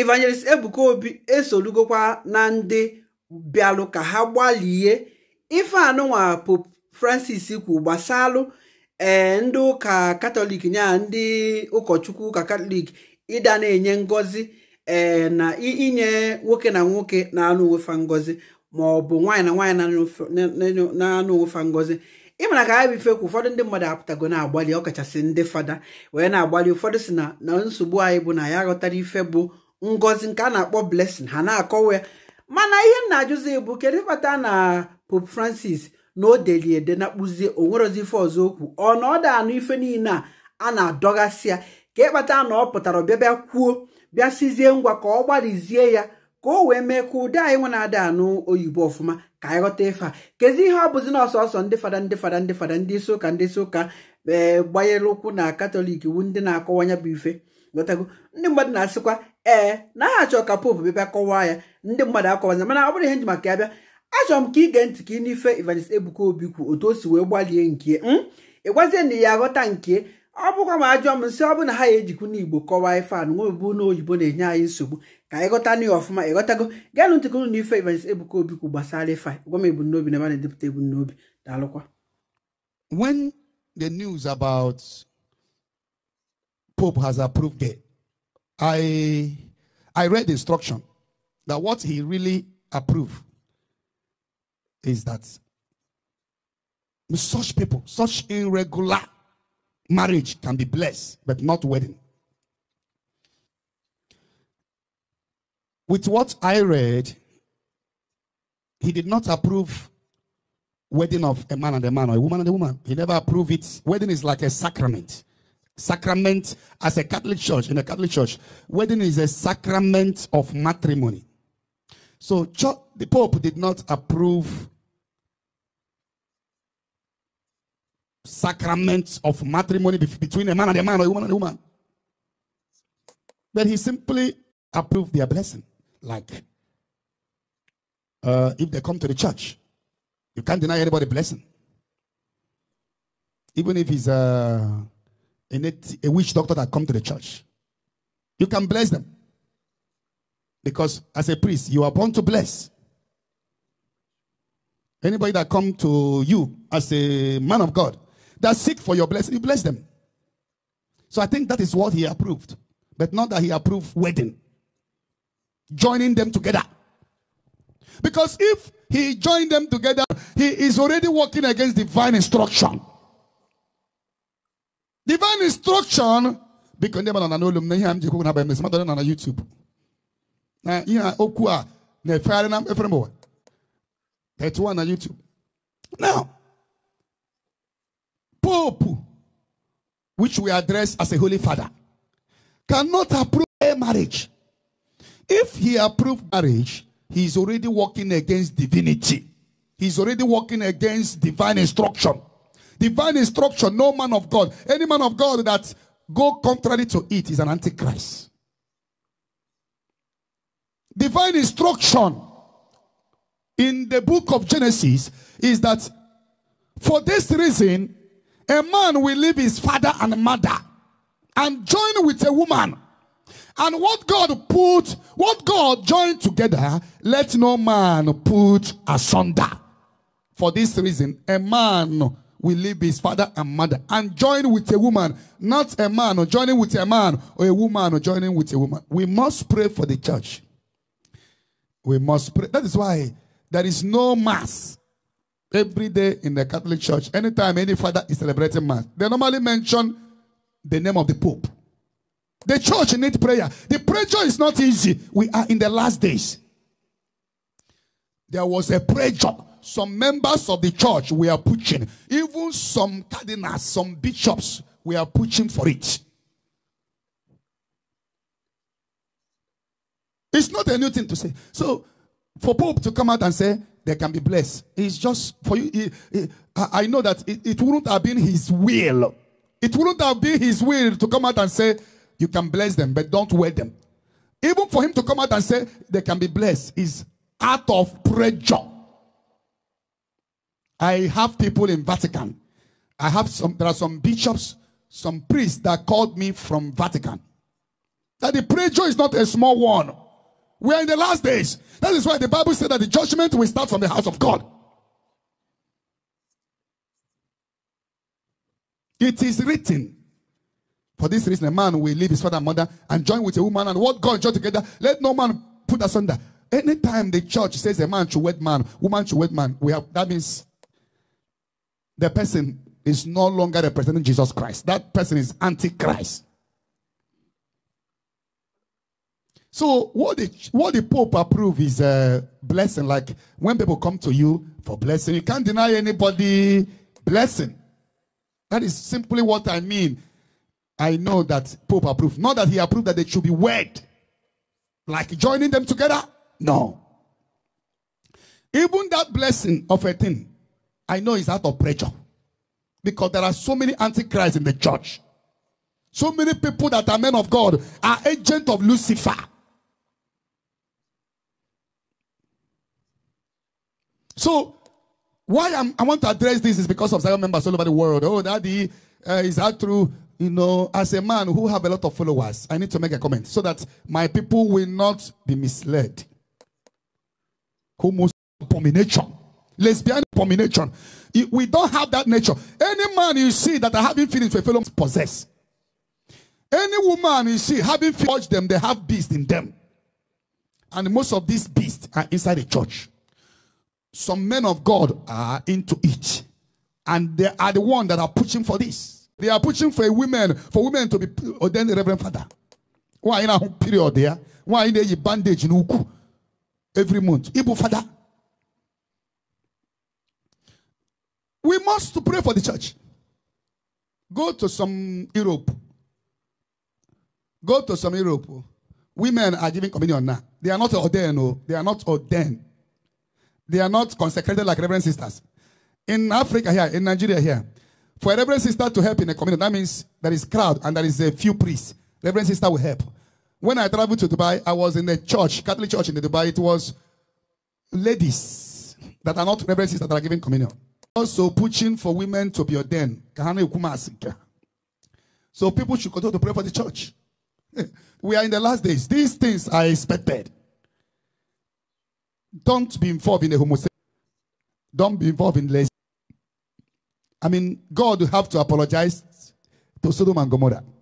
evangelist ebuka obi esolugokwa na ndị bịalụ ka ha gbalie ife anụnwa pope francis kwu gbasalụ ee eh, ndị ụka katọlik nya ndị ụkọchukwu ụka katọlik ịda na-enye ngọzi ee eh, na inye nwoke na nwoke na-anụ onwefa ngọzi ma ọ bụ nwaanyị na nwaanyị na-anụ onwefa ngọzi ịmara ka ha bifekwu ụfọdụ ndị mmadụ apụtago na-agbalị ọkachasị ndị fada wee na-agbalị ụfọdụ si na na nsogbu anyị bụ na ya aghọtara ife bụ ngozi nke a na-akpọ blessing ha na-akọwa ya mana ihe nna ajụzi bụ kedu ịkpata na pope francis na o deli ede na kpụzie onwerozi ife ọzọ okwu ọ na ọ da anụ ife niile a a na-adọgasị ya ka ịkpata na ọ pụtara ọbịa bịa kwuo bịa sizie ngwa ka ọ gbalịzie ya ka o wee mee ka ụdị anyị nwe na-ada anụ oyibo ọfụma ka anyị ghọta ife a kezi ihe ọ bụzi na ọsọsọ ndị fada ndị fada ndị fada ndị isi ụka ndị isi ụka e, gbanyere ụkwụ na katọlik wu ndị na-akọwanya bụ ife ndị mmadụ na-asịkwa ee naghị achọ ka popu bịa kọwaa ya ndị mmadụ akọwaza mana ọ bụrụ ihe nji maka ya bịa achọrọ m ka ị gee ntị ka ị n'ife Evangelist Ebuka Obi kwu otu o si wee gbalie nke hmm? ị gwazie na ya aghọta nke ọ bụkwa ma ajụọ m nsị ọ bụrụ na ha ya ejikwu n'Igbo kọwaa ife anụ nwebebu oyibo na-enye anyị nsogbu ka anyị ghọta n'ihe ọfụma ịghọtago gaanụ ntịkụnụ na ife Evangelist Ebuka Obi kwu gbasara ife gwa m ebumnobi na ebe na-edepụta ebumnobi daalụkwa when the has I I read instruction that what he really approved is that such people, such irregular marriage can be blessed, but not wedding. With what I read, he did not approve wedding of a man and a man or a woman and a woman. He never approved it. Wedding is like a sacrament. Sacrament as a Catholic church, in a Catholic church, wedding is a sacrament of matrimony. So church, the Pope did not approve sacrament of matrimony between a man and a man or a woman and a woman. But he simply approved their blessing. Like, uh, if they come to the church, you can't deny anybody blessing. Even if he's a uh, a, native, a witch doctor that come to the church. You can bless them. Because as a priest, you are born to bless. Anybody that come to you as a man of God that seek for your blessing, you bless them. So I think that is what he approved. But not that he approved wedding. Joining them together. Because if he joined them together, he is already working against divine instruction. Divine instruction because ndị mmadụ na n'olum na ihe m ji ekwu na bịa mmadụ na na YouTube na ihe okwu a na-efegharị na efere 31 na YouTube now Pope which we address as a holy father cannot approve a marriage if he approves marriage he is already working against divinity he is already working against divine instruction Divine instruction, no man of God. Any man of God that go contrary to it is an antichrist. Divine instruction in the book of Genesis is that for this reason, a man will leave his father and mother and join with a woman. And what God put, what God joined together, let no man put asunder. For this reason, a man will leave his father and mother and join with a woman, not a man or joining with a man or a woman or joining with a woman. We must pray for the church. We must pray. That is why there is no mass every day in the Catholic Church. Anytime any father is celebrating mass, they normally mention the name of the Pope. The church needs prayer. The pressure is not easy. We are in the last days. There was a job. Some members of the church we are pushing. Even some cardinals, some bishops, we are pushing for it. It's not a new thing to say. So, for Pope to come out and say they can be blessed, it's just for you. It, it, I know that it, it wouldn't have been his will. It wouldn't have been his will to come out and say you can bless them, but don't wear them. Even for him to come out and say they can be blessed is out of pressure. I have people in Vatican. I have some, there are some bishops, some priests that called me from Vatican. That the preacher is not a small one. We are in the last days. That is why the Bible said that the judgment will start from the house of God. It is written. For this reason, a man will leave his father and mother and join with a woman and what God joined together. Let no man put asunder. Anytime the church says a man should wed man, woman should wed man, we have that means the person is no longer representing Jesus Christ. That person is antichrist. So what the what the Pope approve is a uh, blessing. Like when people come to you for blessing, you can't deny anybody blessing. That is simply what I mean. I know that Pope approved. Not that he approved that they should be wed. Like joining them together? No. Even that blessing of a thing I know it's out of pressure. Because there are so many antichrists in the church. So many people that are men of God are agents of Lucifer. So, why I'm, i want to address this is because of several members all over the world. Oh, daddy, uh, is that true? You know, as a man who have a lot of followers, I need to make a comment so that my people will not be misled. Homos abomination lesbian abomination. We don't have that nature. Any man you see that are having feelings for a fellow possess. Any woman you see having feelings them, they have beast in them. And most of these beasts are inside the church. Some men of God are into it. And they are the one that are pushing for this. They are pushing for women, for women to be ordained reverend father. Why in a period there? Why in the bandage in Uku every month? Ibu father. We must pray for the church. Go to some Europe. Go to some Europe. Women are giving communion now. They are not ordained. No. Oh. They are not ordained. They are not consecrated like reverend sisters. In Africa here, in Nigeria here, for a reverend sister to help in a communion, that means there is crowd and there is a few priests. Reverend sister will help. When I traveled to Dubai, I was in a church, Catholic church in Dubai. It was ladies that are not reverend sisters that are giving communion also pushing for women to be ordained. So people should continue to pray for the church. we are in the last days. These things are expected. Don't be involved in a homosexual. Don't be involved in less. I mean, God will have to apologize to Sodom and Gomorrah.